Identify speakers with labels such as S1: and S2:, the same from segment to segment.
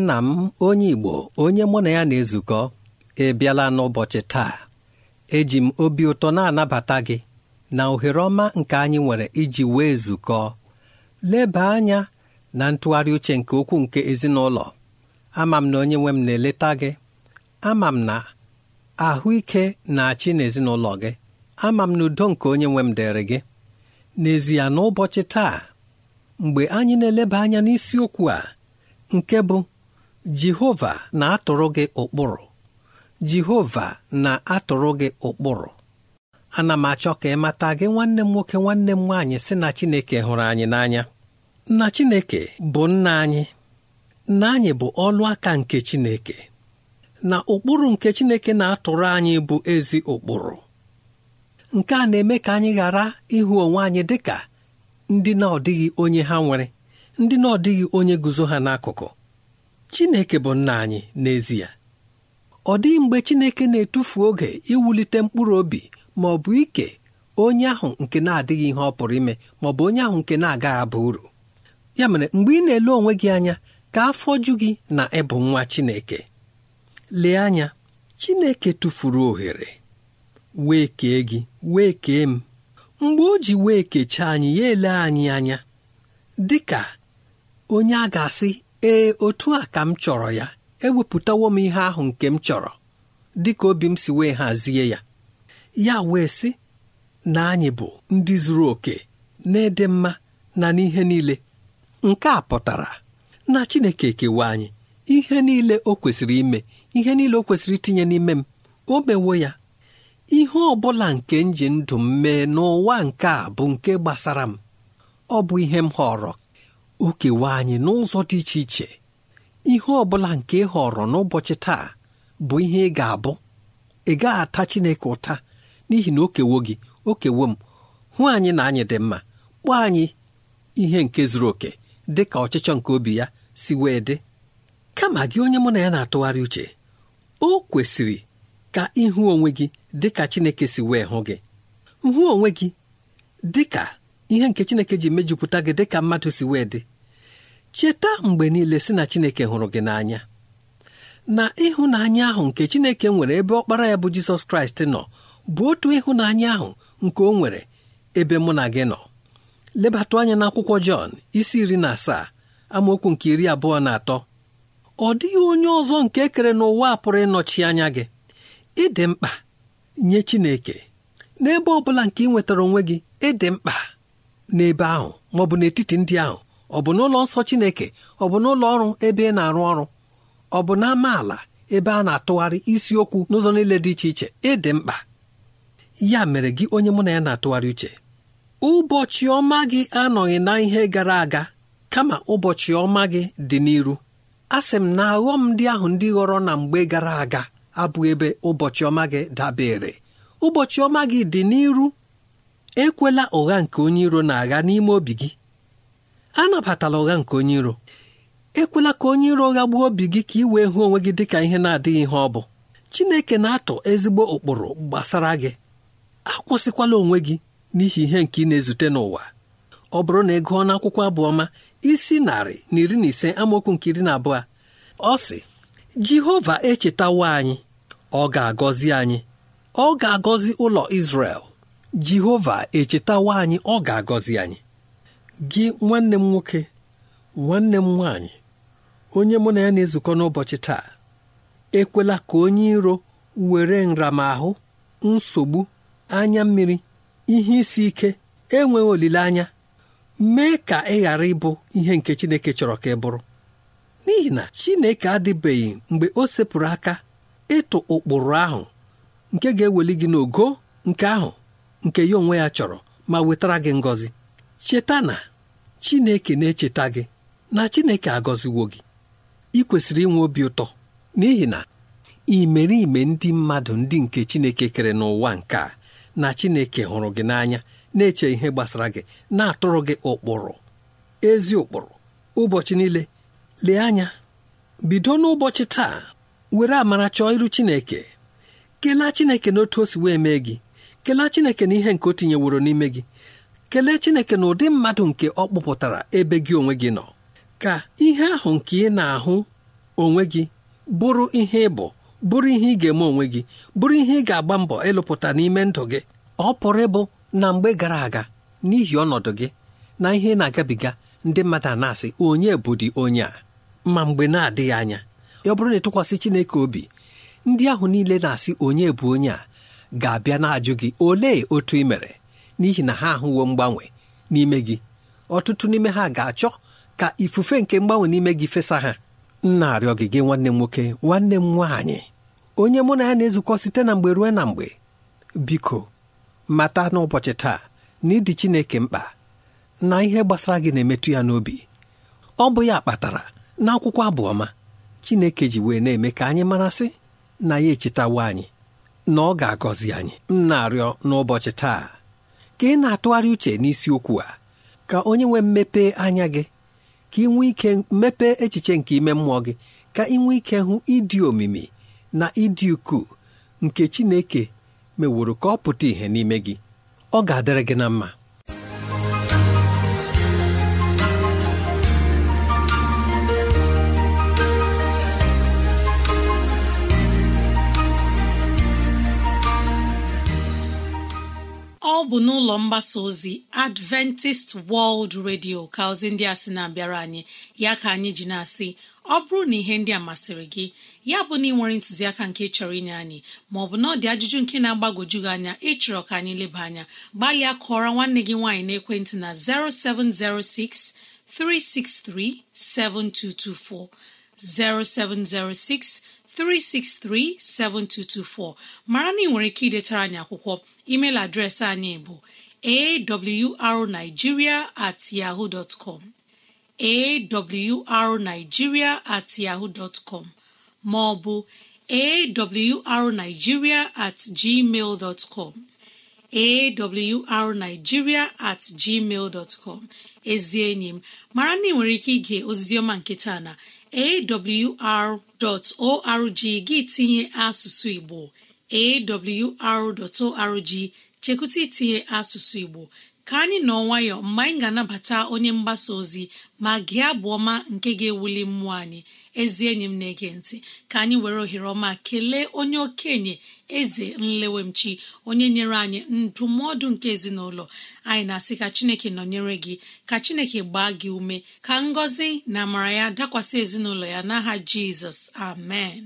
S1: nna m onye Igbo onye mụ na ya na-ezukọ ịbịala n'ụbọchị taa eji m obi ụtọ na-anabata gị na ohere ọma nke anyị nwere iji wee zukọ leba anya na ntụgharị uche nke okwu nke ezinụlọ ama m na onye nwe m na-eleta gị ama m na ahụike na-achị n'ezinụlọ gị ama m na udo nke onye nwe m dịrị gị n'ezie n'ụbọchị taa mgbe anyị na-eleba anya n'isiokwu a nke bụ jehova na-atụrụ gị ụkpụrụ jehova na-atụrụ gị ụkpụrụ ana m achọ ka ị mata gị nwanne m nwoke nwanne m nwaanyị sị na chineke hụrụ anyị n'anya na chineke bụ nna anyị nna anyị bụ ọlụ aka nke chineke na ụkpụrụ nke chineke na-atụrụ anyị bụ ezi ụkpụrụ nke a na-eme ka anyị ghara ịhụ onwe anyị dị ka ndị na-ọdịghị onye ha nwere ndị na-ọdịghị onye guzo ha n'akụkụ Chineke bụ nna anyị n'ezie ọ dịghị mgbe Chineke na-etufu oge iwulite mkpụrụ obi ma ọ bụ ike onye ahụ nke na-adịghị ihe ọ pụrụ ime ma ọ bụ onye ahụ nke na-agaghị aba uru ya mere mgbe ị na-ele onwe gị anya ka afọ ju gị na ịbụ nwa Chineke lee anya Chineke tụfuru ohere wee kee gị wee kee m mgbe o ji wee kechaa anyị ya ele anyị anya dị ka onye a ga-asị ee otu a ka m chọrọ ya ewepụtawo m ihe ahụ nke m chọrọ dịka obi m si wee hazie ya ya wee sị na anyị bụ ndị zuru oke na n'ịdị mma na n'ihe niile nke a pụtara na Chineke kewa anyị ihe niile o kwesịrị ime ihe niile o kwesịrị itinye n'ime m o mewo ya ihe ọ bụla nke m ndụ m mee n'ụwa nke a bụ nke gbasara m ọ bụ ihe m họrọ o anyị n'ụzọ dị iche iche ihe ọ bụla nke ị họrọ n'ụbọchị taa bụ ihe ị ga-abụ ị gaghị ata Chineke ụta n'ihi na o kewo gị okewo m hụ anyị na anyị dị mma kpọọ anyị ihe nke zuru oke dị ka ọchịchọ nke obi ya si wee dị kama gị onye mụ na ya na-atụgharị uche o kwesịrị ka ịhụ onwe gị dị ka Chineke si wee hụ gị hụ onwe gị dị ka ihe nke Chineke ji mejupụta gị dị ka mmadụ si wee dị cheta mgbe niile sị na Chineke hụrụ gị n'anya na ịhụnanya ahụ nke Chineke nwere ebe ọkpara ya bụ Jizọs Kraịst nọ bụ otu ịhụnanya ahụ nke o nwere ebe mụ na gị nọ lebatụ anya n'akwụkwọ Jọn isi iri na asaa amaokwu nke iri abụọ na atọ ọ dịghị onye ọzọ nke kere n'ụwa a pụrụ ịnọchi anya gị ịdị mkpa nye Chineke n'ebe ọ bụla nke ị nwetara onwe gị ịdị mkpa n'ebe ahụ ma ọ bụ n'etiti ndị ahụ ọ bụ n'ụlọ nsọ chineke ọ bụ n'ụlọ ọrụ ebe ị na-arụ ọrụ ọ bụ na ala ebe a na-atụgharị isiokwu n'ụzọ niile dị iche iche ịdị mkpa ya mere gị onye mụ na ya na-atụgharị uche ụbọchị ọma gị anọghị na ihe gara aga kama ụbọchị ọma gị dị n'iru A sị m na aghọm ndị ahụ ndị ghọrọ na mgbe gara aga abụ ebe ụbọchị ọma gị dabere ụbọchị ọma gị dị n'iru ekwela ụgha nke onye iro na-agha n'ime obi gị anabatala ụgha nke onye iro ekwela ka onye iro ụgha gbuo obi gị ka ị wee hụ onwe gị dị ka ihe na-adịghị ihe ọ bụ Chineke na-atụ ezigbo ụkpụrụ gbasara gị akwụsịkwala onwe gị n'ihi ihe nke ị na-ezute n'ụwa ọ bụrụ na ị gụọ n'akwụkwọ abụọma isi narị na iri na ise amaokwu nke iri na abụọ ọ sị Jehova echetawo anyị ọ ga-agọzi anyị ọ ga-agọzi ụlọ Izrel Jehova echetawo anyị ọ ga-agọzi anyị gị nwanne m nwoke nwanne m nwaanyị onye mụ na ya na-ezukọ n'ụbọchị taa ekwela ka onye iro were nramahụ nsogbu anya mmiri ihe isi ike enweghị olileanya mee ka ị ghara ịbụ ihe nke Chineke chọrọ ka ị bụrụ n'ihi na Chineke adịbeghị mgbe o sepụrụ aka ịtụ ụkpụrụ ahụ nke ga-eweli gị n'ogo nke ahụ nke ya onwe ya chọrọ ma wetara gị ngọzi cheta na Chineke na-echeta gị na Chineke agọziwo gị ị kwesịrị inwe obi ụtọ n'ihi na imerime ndị mmadụ ndị nke Chineke kere n'ụwa nke a na Chineke hụrụ gị n'anya na-eche ihe gbasara gị na-atụrụ gị ụkpụrụ ezi ụkpụrụ ụbọchị niile lee anya bido n'ụbọchị taa were amara chọọ iru Chineke kelee Chineke na otu o si wee mee gị kelee Chineke na ihe nke o tinyeworo n'ime gị kelee chineke na ụdị mmadụ nke ọ kpụpụtara ebe gị onwe gị nọ ka ihe ahụ nke ị na-ahụ onwe gị bụrụ ihe ịbụ bụrụ ihe ị ga-eme onwe gị bụrụ ihe ị ga-agba mbọ ịlụpụta n'ime ndụ gị ọ pụrụ ịbụ na mgbe gara aga n'ihi ọnọdụ gị na ihe na-agabiga ndị mmadụ a na-asị onye bụdị onye a ma mgbe na-adịghị anya ọ bụrụ na ịtụkwasị Chineke obi ndị ahụ niile na-asị onye bụ onye a ga-abịa na-ajụ gị olee otu ị mere n'ihi na ha ahụwo mgbanwe n'ime gị ọtụtụ n'ime ha ga-achọ ka ifufe nke mgbanwe n'ime gị fesa ha nna arịọ gị gị nwanne m nwoke nwanne m nwaanyị onye mụ na ya na-ezukọ site na mgbe ruo na mgbe biko mata n'ụbọchị taa na ịdị Chineke mkpa na ihe gbasara gị na-emetụ ya n'obi ọ bụ ya kpatara na akwụkwọ abụọma Chineke ji wee na-eme ka anyị marasị na ya echetawa anyị na ọ ga-agọzi anyị m na-arịọ n'ụbọchị taa ka ị na-atụgharị uche n'isiokwu a ka onye nwee mmepe anya gị ka ị nwee ike mmepe echiche nke ime mmụọ gị ka ị nwee ike hụ ịdị omimi na ịdị ukwuu nke Chineke meworo ka ọ pụta ìhè n'ime gị ọ ga-adịrị gị na mma
S2: ọ bụ n'ụlọ mgbasa ozi Adventist World Radio ka ozi ndị a sị na-abịara anyị ya ka anyị ji na-asị ọ bụrụ na ihe ndị a masịrị gị ya bụ na ị nwere ntụziaka nke chọrọ inye anyị maọbụ na ọ dị ajụjụ nke na agbagoju gị anya ịchọrọ ka anyị leba anya gbalịa kọọrọ nwanne gị nwaanyị na 0706 363 7224 0706 363-7224 mara na ị nwere ike idetara anyị akwụkwọ email adreesị anyị bụ arigiria at at maọbụ ma ọ bụ at gmail com at gmail ezi enyi m mara na ị nwere ike ige ozizioma nke taa na awr.org gị tinye asụsụ Igbo awr.org chekwụta itinye asụsụ Igbo ka anyị nọ nwayọ mgbe anyị ga-anabata onye mgbasa ozi ma gị abụ ọma nke ga-ewuli mmụọ anyị ezi enyi m na-ege ntị ka anyị were ohere ọma kelee onye okenye eze nlewemchi onye nyere anyị ndụmọdụ nke ezinụlọ anyị na-asị ka chineke nọnyere gị ka chineke gbaa gị ume ka ngọzi na amara ya dakwasị ezinụlọ ya n'aha jizọs amen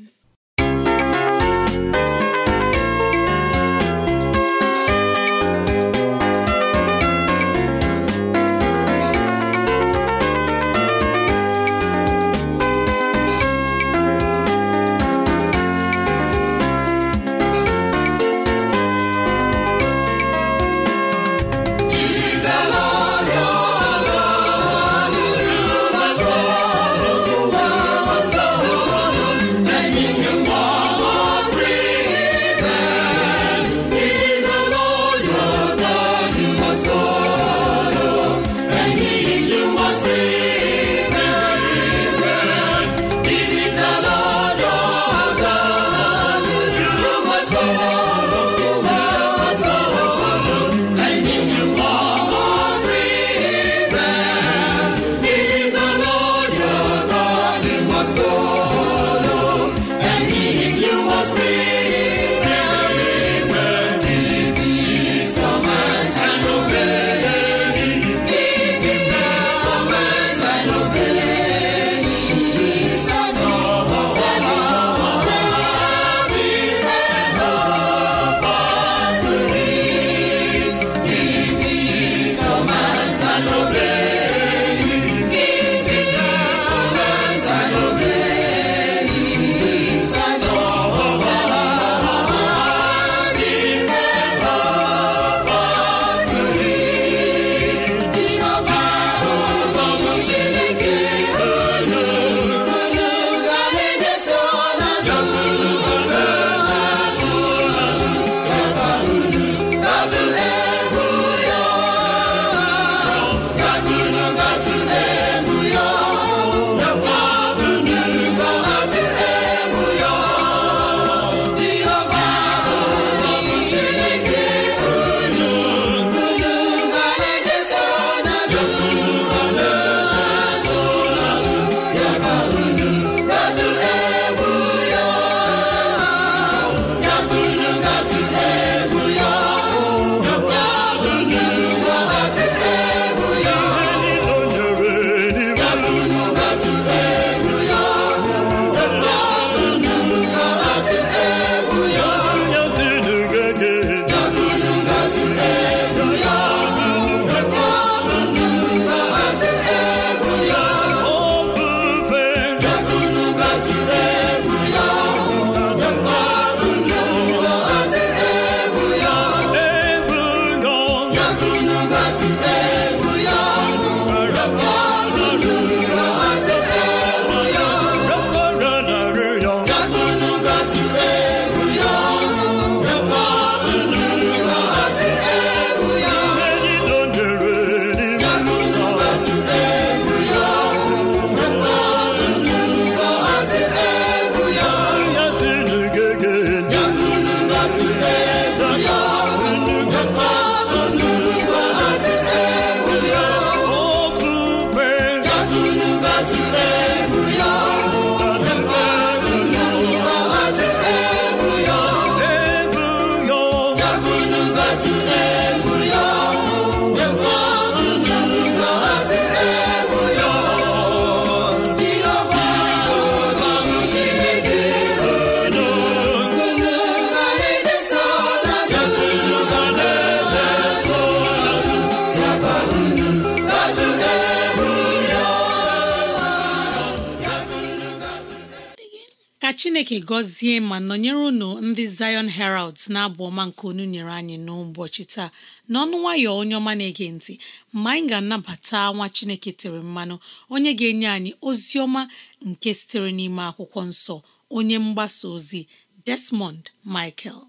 S2: chineke gọzie ma nọnyere unu ndị Zion heralds na-abụ ọma nke onye nyere anyị n'ụbọchị taa n'ọnụ nwayọ onye ọma na-ege ntị ma anyị ga-anabata nwa chineke tere mmanụ onye ga-enye anyị ozi ọma nke sitere n'ime akwụkwọ nsọ onye mgbasa ozi Desmond Michael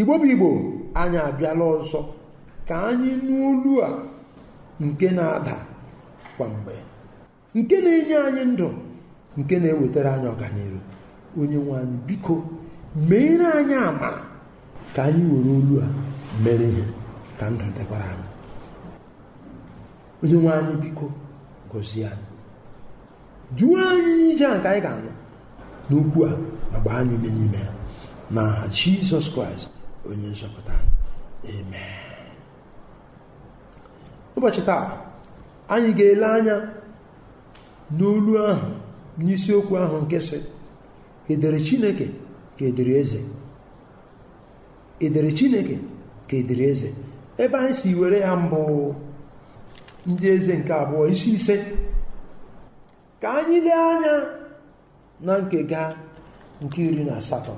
S3: igbo bụ igbo anyị abịala ọzọ ka anyị n'olu a nke na-ada kwa mgbe nke na-enye anyị ndụ nke na-ewetara anyị ọganihu onye nwe anyị biko meere anyị amara ka anyị were olu a mere ihe ka ndụ dịkwara anyị onye nwe anyị biko gọzie anyị duo anyị n'ije a ka anyị ga-anọ n'okwu a ma gbaa anyị ume n'ime ya na Jizọs Kraịst onye nzọpụta amen ụbọchị taa anyị ga-ele anya n'olu ahụ n'isiokwu ahụ nke sị edere chineke ka edere eze edere chineke ka edere eze ebe anyị si were ya mbụ ndị eze nke abụọ isi ise ka anyị lee anya na nke ga nke iri na asatọ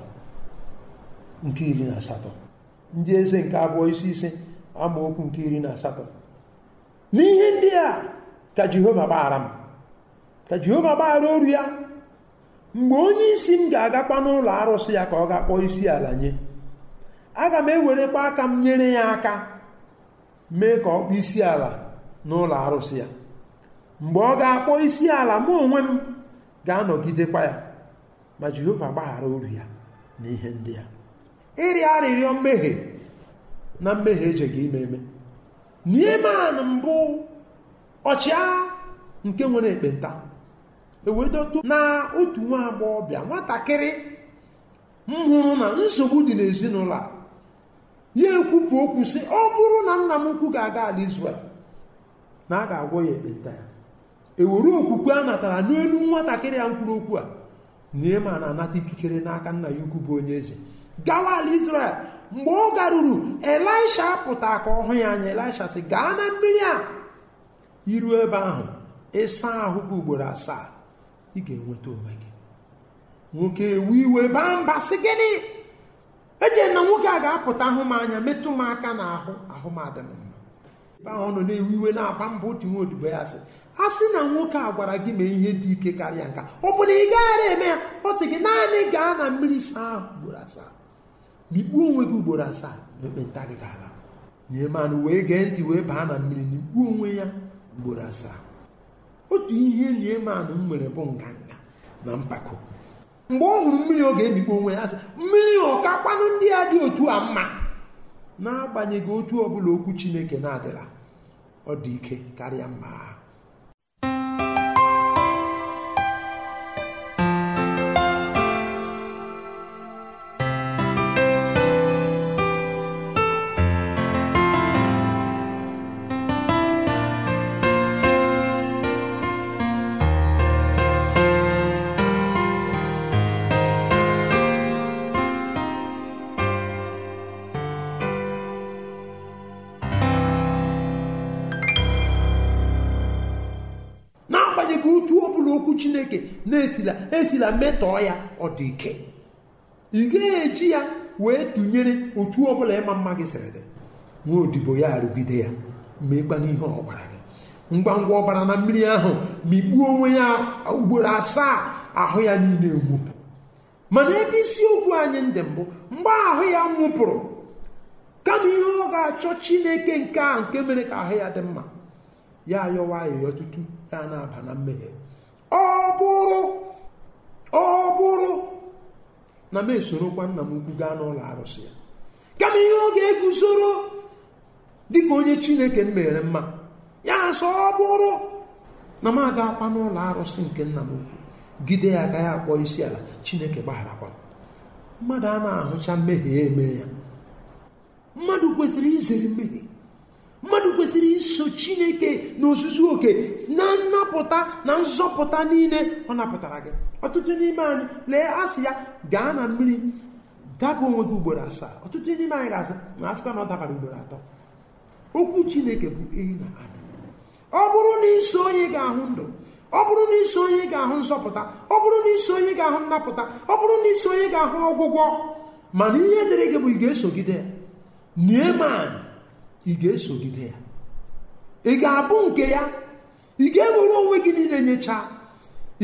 S3: nke iri na asatọ ndị eze nke abụọ isi ise okwu nke iri na asatọ n'ihe ndị a ka jehova gbaghara m ka jehova gbaghara oru ya mgbe onye isi m ga-agakwa n'ụlọ arụsị ya ka ọ ga-akpọ isi ala nye aga m ewerekwa aka m nyere ya aka mee ka ọ kpọọ isi ala n'ụlọ arụsị ya mgbe ọ ga-akpọ isi ala mụ onwe m ga-anọgidekwa ya ma jehova gbaghara oru ya n'ihe ndị a ịrịa arịrịọ mmehie na mmehie eje gị ime eme nieman mbụ ọchịagha nke nwere ekpenta ewedodo na otu nwa agbọghọbịa nwatakịrị m hụrụ na nsogbu dị n'ezinụlọ a ya ekwupụ okwu si ọ bụrụ na nna m ukwu ga-aga ala Izrel na a ga-agwọ ya ekpenta ya ewere okwukwe a natara n'elu nwatakịrị ya mkpụrụ okwu a na anata ikikere n'aka nna ya ukwu bụ onye eze gawa ala Izrel mgbe ọ garuru elisha pụta ka ọ hụ ya anya elisha sị gaa na mmiri a iruo ebe ahụ ịsa ahụ gị ugboro asaa ị ga-enweta onwe gị nwoke ewu iwe baa mba sị gịnị eche na nwoke a ga-apụta ahụ m anya metụ m aka na ahụ ahụ m adịm mma ọ nọ na-ewu iwe na-agba mba otu nwa odibo ya si a sị na nwoke a gwara gị mee ihe dị ike karịa nka ọ bụ na ị gaghara eme ya ọ sị gị naanị gaa na mmiri saa ahụ ugboro asaa na onwe gị ugboro asaa na ekpenta gị ga-ala nye manụ wee gee ntị wee baa na mmiri na onwe ya ugboro asaa otu ihe nyemanụ m nwere bụ nganga na mpako mgbe ọ hụrụ mmiri oge ga-emikpo onwe ya sị mmiri ọkakwanụ ndị a dị otu a mma n'agbanyeghị otu ọbụla okwu chineke na-adịla ọ dị ike karịa mma dị ka otu ọ bụla okwu chineke na-esila esila metọọ ya ọ dị ike ị ga eji ya wee tụnyere otu ọ bụla ịma mma gị sịrị dị nwa odibo ya arụgide ya meekpa n'ihe ọ gị ngwa ngwa ọbara na mmiri ahụ mikpuo onwe ya ugboro asaa ahụ ya niile nwụpụ mana ebe isiokwu anyị ndị mbụ mgbe ahụ ya nwụpụrụ kama ihe ọ ga-achọ chineke nke a nke mere ka ahụ ya dị mma ya ayọwa ayọyọ tutu ya na-aba na mmehie ọ bụrụ ọ bụrụ na m esorokwa nna m ukwu gaa n'ụlọ arụsị ya kama ihe ọ ga-eguzoro dịka onye chineke m mere mma ya sọ ọ bụrụ na m agakwa n'ụlọ arụsị nke nna m ukwu gide ya agaghị akpọ isi ala chineke gbagharakwa mmadụ a na-ahụcha mmehie eme ya mmadụ kwesịrị izere mmehie kwesịrị iso chineke n'ozuzu oke na nnapụta na nzọpụta niile ọ napụtara gị ọtụtụ n'ime anyị lee asị ya gaa na mmiri dapụ onwe gị ugboro asaa ọtụtụ n'ime anyị ga na asịkwa na ọ dabara ugboro atọ okwu chineke bụ ehi na ada ọ bụrụ na iso onye ga-ahụ ndụ ọ bụrụ na iso onye ga-ahụ nzọpụta ọ bụrụ na iso onye ga-ahụ nnapụta ọ bụrụ na iso onye ga-ahụ ọgwụgwọ mana ihe dịrị gị ị ga-esogide ya ị ga-abụ nke ya ị ga-ewere onwe gị niile nyechaa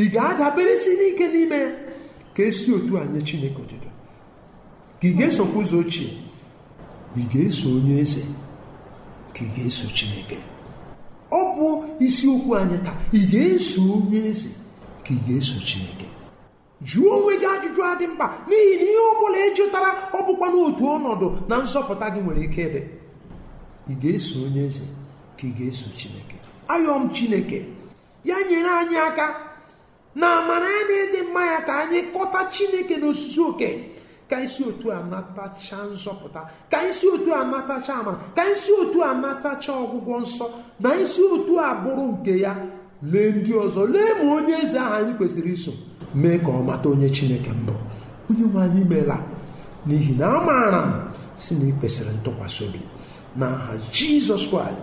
S3: ị ga-adaberesi n'ike n'ime ya ka esi otu a nye chineke otuto ka ị ga-esokwa ụzọ ochie ị ga-eso onye eze ka ị ga-eso chineke ọ bụ isiokwu anyị taa ị ga-eso onye eze ka ị ga-eso chineke jụọ onwe gị ajụjụ adị mkpa n'ihi na ihe ọ bụla ejụtara ọ bụkwa n'otu ọnọdụ na nsọpụta gị nwere ike ịdị ị ga-eso onye eze ka ị ga-eso chineke ayọm chineke ya nyere anyị aka na amara ya na ịdị mma ya ka anyị kọta chineke n'osisi oke ka isi otu a natacha nzọpụta ka isi otu a natacha amara ka isi otu a natacha ọgwụgwọ nsọ na isi otu a bụrụ nke ya lee ndị ọzọ lee ma onye eze ahụ anyị kwesịrị iso mee ka ọ mata onye chineke mbụ onye nwe anyị meela n'ihi na amaara m si na ị kwesịrị ntụkwasị obi aha jizọs kraịst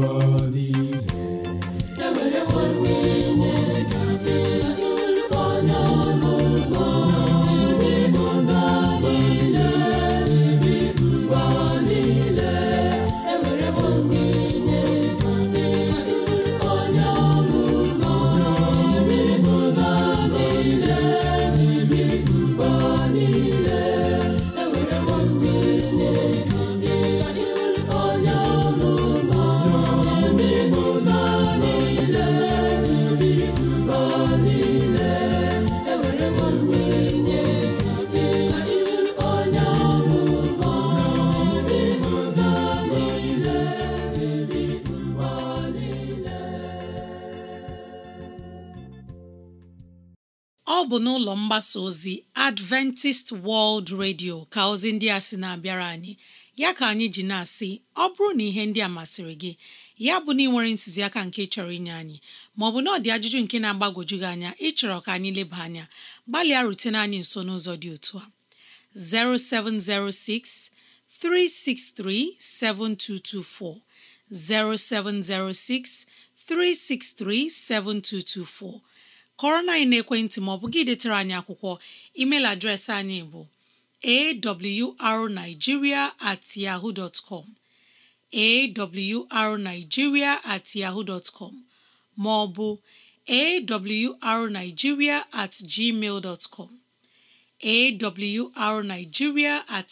S4: goodbye.
S2: mgbasa ozi Adventist World Radio ka ozi ndị a sị na-abịara anyị ya ka anyị ji na-asị ọ bụrụ na ihe ndị a masịrị gị ya bụ na ị nwere ntụziaka nke chọrọ inye anyị maọbụ na ọ dị ajụjụ nke na-agbagwoju gị anya ịchọrọ ka anyị leba anya gbalịa rutene anyị nso n'ụzọ dị otu a 0706 363 7224 0706 363 7224 kọrọ na anyị na-ekwentị ma ọ bụ gị detere anyị akwụkwọ email adreesị anyị bụ awrnigeria at com at ma ọ bụ at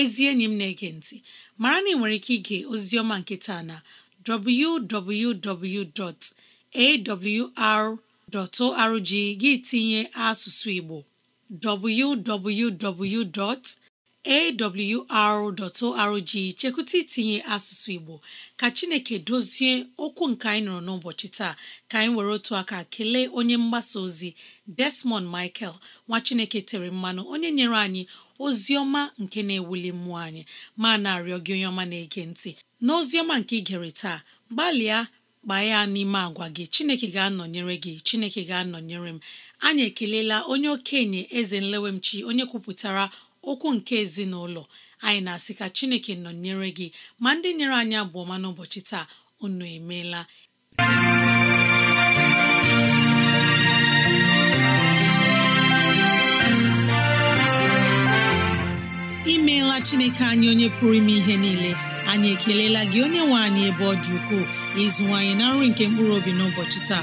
S2: ezi enyi m na-ege ntị mara na ị nwere ike ige oziọma nke taa na arorg gị tinye asụsụ Igbo www. awr.org chekwụta itinye asụsụ Igbo ka Chineke dozie okwu nke anyị nọrọ n'ụbọchị taa ka anyị were otu aka kelee onye mgbasa ozi Desmond Michael nwa Chineke tere mmanụ onye nyere anyị ozi ọma nke na-ewuli mmụọ anyị ma na-arịọ gị onye ọma na-ege ntị na ọma nke ị gere taa gbalịa gbaa ya n'ime agwa gị Chineke ga-anọnyere gị Chineke ga-anọnyere m anyị ekelela onye okenye eze nlewemchi onye kwupụtara okwu nke ezinụlọ anyị na-asị ka chineke nọnyere gị ma ndị nyere anyị abụọma n'ụbọchị taa unu emeela imeela chineke anyị onye pụrụ ime ihe niile anyị ekelela gị onye nwe anyị ebe ọ dị ukwuu ịzụwanyị na nri nke mkpụrụ obi n'ụbọchị taa